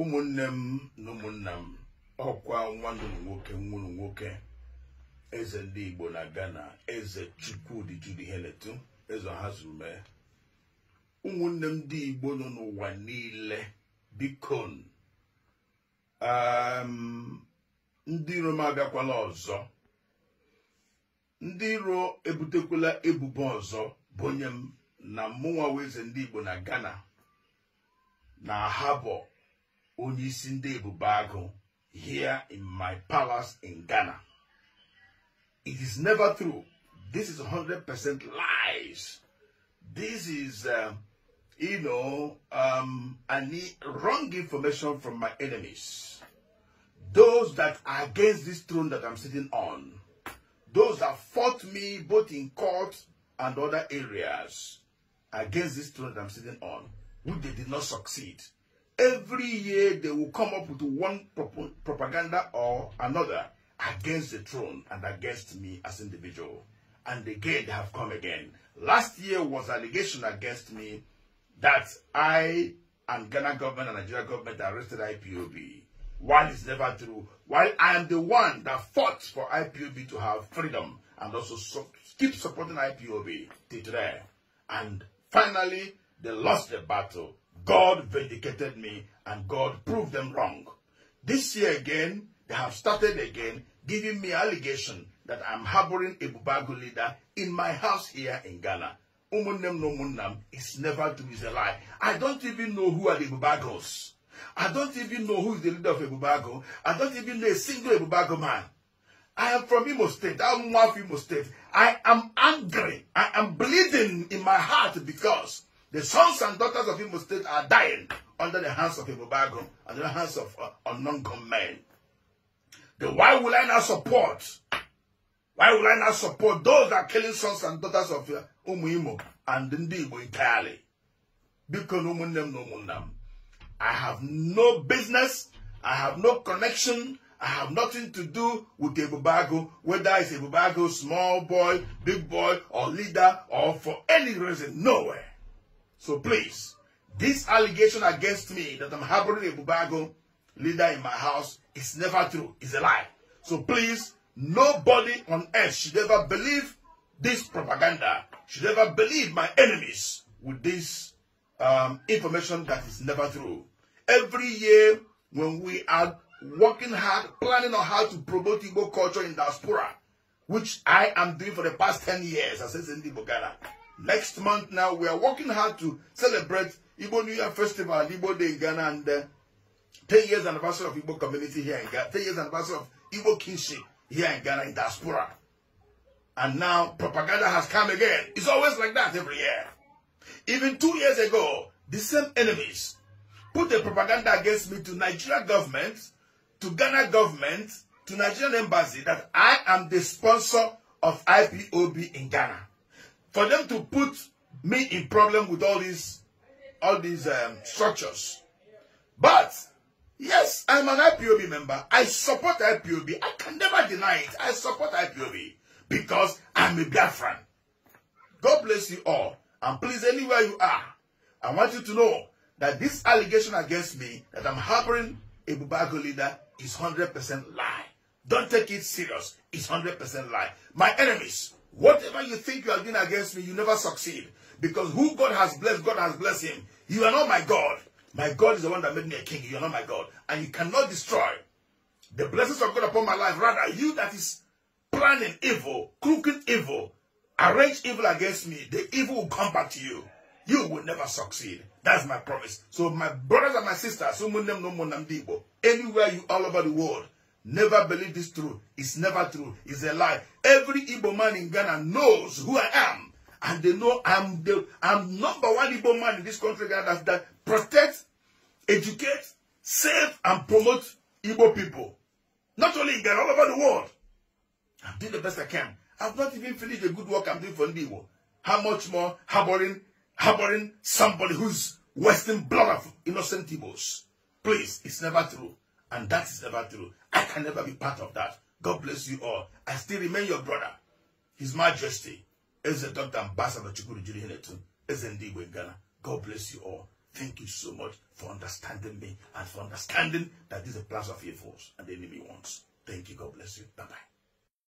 ụmụnne m na ụmụnna m ọkwa nwa m nwoke nwụrụ nwoke eze ndị igbo na ghana eze chukwudi jude heletu eze ọhazume ụmụnne m ndị igbo nọ n'ụwa niile bikon um, ndị iro m abịakwala ọzọ ndị iro ebutekwala ebubo ọzọ bụ onye m na mụnwa eze ndị igbo na ghana na habo onye isi here in my palace in Ghana. It is never true. This is 100% lies. This is, uh, you know, um, I need wrong information from my enemies. Those that are against this throne that I'm sitting on. Those that fought me both in court and other areas against this throne that I'm sitting on, who they did not succeed every year they will come up with one prop propaganda or another against the throne and against me as individual. And again, they have come again. Last year was allegation against me that I and Ghana government and Nigeria government arrested IPOB. While it's never true, while I am the one that fought for IPOB to have freedom and also so keep supporting IPOB till today. And finally, they lost the battle God vindicated me and God proved them wrong. This year again, they have started again giving me allegation that I'm harboring a Bubagu leader in my house here in Ghana. Umunem no munnam is never to be a lie. I don't even know who are the Bubagos. I don't even know who is the leader of a Bubago. I don't even know a single Bubago man. I am from Imo State. I'm one of Imo State. I am angry. I am bleeding in my heart because the sons and daughters of Imo State are dying under the hands of Ibobagum, under the hands of uh, unknown men. Then why will I not support? Why will I not support those that are killing sons and daughters of uh, and Ndibo entirely? Because no I have no business, I have no connection, I have nothing to do with Ebubago, whether it's Ebubago, small boy, big boy, or leader, or for any reason, nowhere. So please, this allegation against me that I'm harboring a Bubago leader in my house is never true. It's a lie. So please, nobody on earth should ever believe this propaganda, should ever believe my enemies with this um, information that is never true. Every year when we are working hard, planning on how to promote Igbo culture in diaspora, which I am doing for the past 10 years, as says the Bogana, Next month now, we are working hard to celebrate Igbo New Year Festival, Igbo Day in Ghana, and uh, 10 years anniversary of Igbo community here in Ghana, 10 years anniversary of Igbo kinship here in Ghana in diaspora. And now propaganda has come again. It's always like that every year. Even two years ago, the same enemies put the propaganda against me to Nigeria government, to Ghana government, to Nigerian embassy that I am the sponsor of IPOB in Ghana. for them to put me in problem with all these all these um, structures. But yes, I'm an IPOB member. I support IPOB. I can never deny it. I support IPOB because I'm a Biafran. God bless you all. And please, anywhere you are, I want you to know that this allegation against me that I'm harboring a Bubago leader is 100% lie. Don't take it serious. It's 100% lie. My enemies Whatever you think you are doing against me, you never succeed. Because who God has blessed, God has blessed him. You are not my God. My God is the one that made me a king. You are not my God. And you cannot destroy the blessings of God upon my life. Rather, you that is planning evil, crooked evil, arrange evil against me, the evil will come back to you. You will never succeed. That's my promise. So my brothers and my sisters, anywhere you all over the world, Never believe this true. It's never true. It's a lie. Every Igbo man in Ghana knows who I am. And they know I'm the I'm number one Igbo man in this country that, that protects, educates, save, and promote Igbo people. Not only in Ghana, all over the world. I'm doing the best I can. I've not even finished the good work I'm doing for Igbo. How much more harboring, harboring somebody who's wasting blood of innocent Igbos? Please, it's never true. And that is never true can never be part of that. God bless you all. I still remain your brother. His Majesty is the Dr. Ambassador Chukuru Jiri Hinetun is indeed in Ghana. God bless you all. Thank you so much for understanding me and for understanding that this is a place of evils and the enemy wants. Thank you. God bless you. Bye-bye.